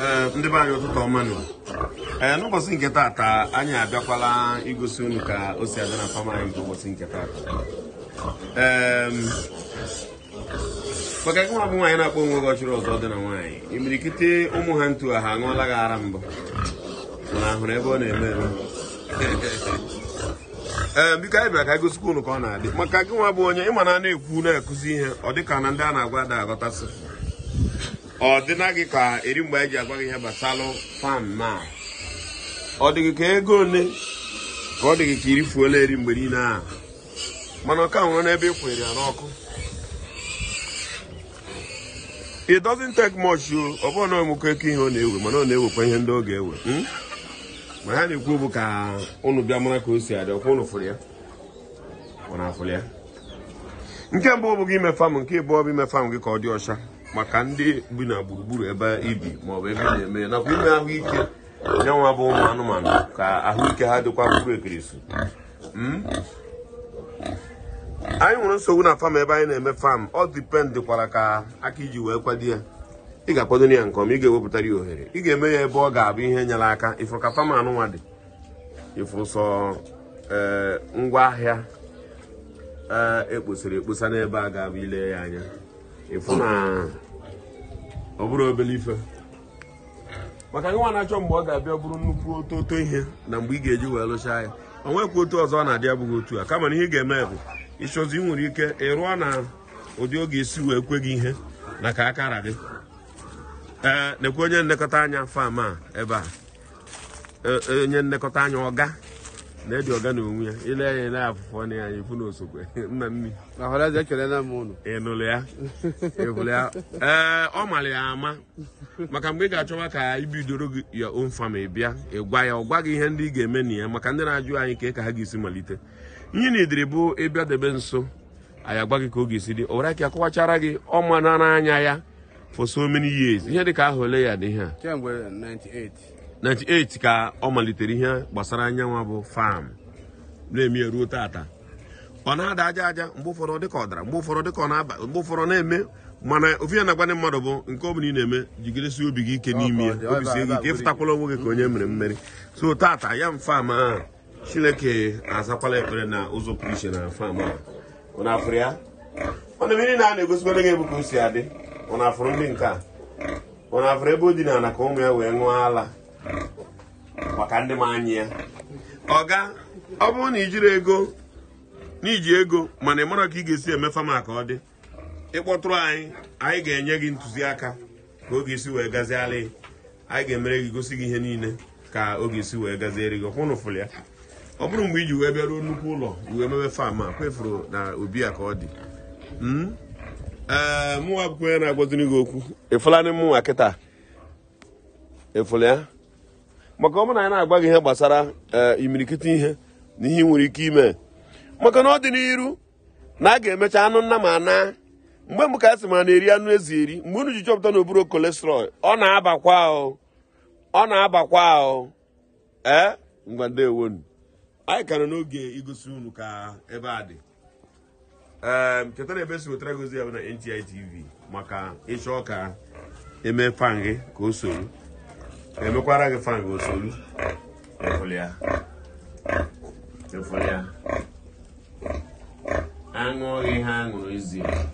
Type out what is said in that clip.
Eh, ndị be anyị ụtụtụ ọma ee eh, n'ụbọchị nke taata anyị abịakwala igosi unu ka o si abịa na fam anyị nke ụbọchị nke taata maka gị nwa bụ nwaanyị na-akpọ onwe gị ọchịrị ọzọ dị na nwaanyị imirikiti ụmụ ha ntu ha aṅụọla gị ara mbụ mana ahụrụ ebe ọ na-eme eme ee biko anyị bịara ka gosikwa unu ka ọ na-adị maka gị nwa bụ onye ịma na a ekwu na-ekụzi ihe ọ dị ka na ndị a na-agwa ada aghọtasị ọ dịna gị ka eri mgbe eji agwa gị ihe gbasalụ fan na ọ dịghị ka ego ole ka ọ dịghị ka iri fuola eri mgbe niile ahụ mana ọka nwụrụ n'ebe ị kwere ya n'ọkụ it doesn't take much o ọ bụrụ na ọmụkọ eke ihe ọ na-ewe mana ọ na-ewekwa ihe ndị ọ ga-ewe hmm? ma ha na-ekwu bụ ka ụnụ bịa mara ka o si adị ọkwa ụnụ fụrụ ya ọ na-afụrụ ya nke mbụ ọ bụghị ime fam nke ịbụọ bụ ime fam gị ka ọ dị ọcha maka ndị bi na gburugburu ebe ibi maọbụ ebe na-eme nakwa ime ahụike nye nwa bụ ụmụ anụmanụ ka ahụike ha dịkwa bụrụ ekirisi hmm? anyị nwere nsogbu na fam ebe anyị na-eme fam ọ dịpendịkwara ka aka iji wee kwado ya ị ga-akwado ya nke ọma ị ga-ewepụtara ya ohere ị ga-eme ya ebe ọ ga-abụ ihe nyere aka ịfụrụ ka fam anụnwa dị ịfụsọ sọ ee eh, ngwa ahịa eh, ekposara ekposa n'ebe a ga-abụ ile ya anya ịfụ na ọ obere ife maka nwa na-achọ mgbe ọ ga-abịa bụrụ nnukwu ototo ihe na mgbe ị ga-eji wee lụchaa ya o nwekwa otu ọzọ ọ na-adị abụghị otu a kama na ihe ga-eme bụ ịchọzi ị nwere ike ịrụọ na ụdị oge isi wee kwe gị ihe na ka akara gị ee nekwe onye nlekọta anya fam a ebe a e, e, onye nlekọta anya ọga na edi ọga na onwe ya ile anya ile afụfọ na ya ifu na osokwe nna nni ị nụrụ ya ịhụrụ ya ee ọ mara ya ama maka mgbe ị ga-achọwa ka ibidoro gị ya own family bịa ịgwa ya ọ gwa gị ihe ndị ị ga-eme na ya maka ndị na-ajụ anyị ka ka ha ga-esi malite ihe na idiri bụ ịbịa debe nso anyị agwa gị ka ọ ga-esi dị owere ka akọwachara gị ọma na anya ya for so many years ihe dị ka ahụ ole ya dị ihe a 98 ka ọ malitere ihe gbasara anyanwụ bụ fam na-eme ya ruo tata ọ na-ada aja aja mgbe ụfọdụ dịka ọ dara mgbe ụfọdụ dịka ọ na-aba mgbe ụfọdụ na-eme mana ofu ya na-agwa mmadụ bụ nke ọ bụla ị na-eme jigidesie obi gị ike n'ime ya obi sie gị ike ịfụtakwala onwe gị ka onye mere mmeri so tata ya m fam ahụ chineke azakwala ekpere na ụzọ pụrụ iche na fam ahụ afụrụ ya ọnụ mmiri na a na-egosikwara gị ebe o si adị ọ ndị nke a ọ ebe o dina na ka ụmụ ya wee ṅụọ ala ka ndị m anyị ya ọga ọ bụrụ na ijiri ego n'iji ego mana ị mara ka ị ga-esi eme fama ka ọ dị ịkpọtụrụ anyị anyị ga-enye gị ntụziaka ka oge isi wee gazialị anyị ga-emere gị gosi gị ihe niile ka oge isi wee gaziere gị ọkwụnụ fụlụ ya ọ bụrụ mgbe iji wee bịaruo nnukwu ụlọ iwe mebe fam a kwefuru na obi a ka ọ dị hmm? ee mụnwa akwụkwọ ya na-agwaziri gị okwu ịfụla ndị mụnwa kịta ịfụla ya maka ọ bụrụ na anyị na-agwa gị ihe gbasara eh, imirikiti ihe na ihe nwere ike ime maka na ọ dị n'iru na a ga-emecha anụ nna ma na mgbe mbụ ka a sị ma na-eri anụ ezi eri mgbe unu ji chọpụta na oburo kolesterọl ọ na-abakwa ọ na-abakwa ahụ ee eh, ngwa ndewonu anyị ka n'oge igosi unu ka ebe a dị ee eh, chetara ebe esi wetara gozi ya bụ na NTI maka ịchọ ka eme fan gị ka o soro emekwara gị fan gị osolu aṅụghị ha aṅụrụ ezie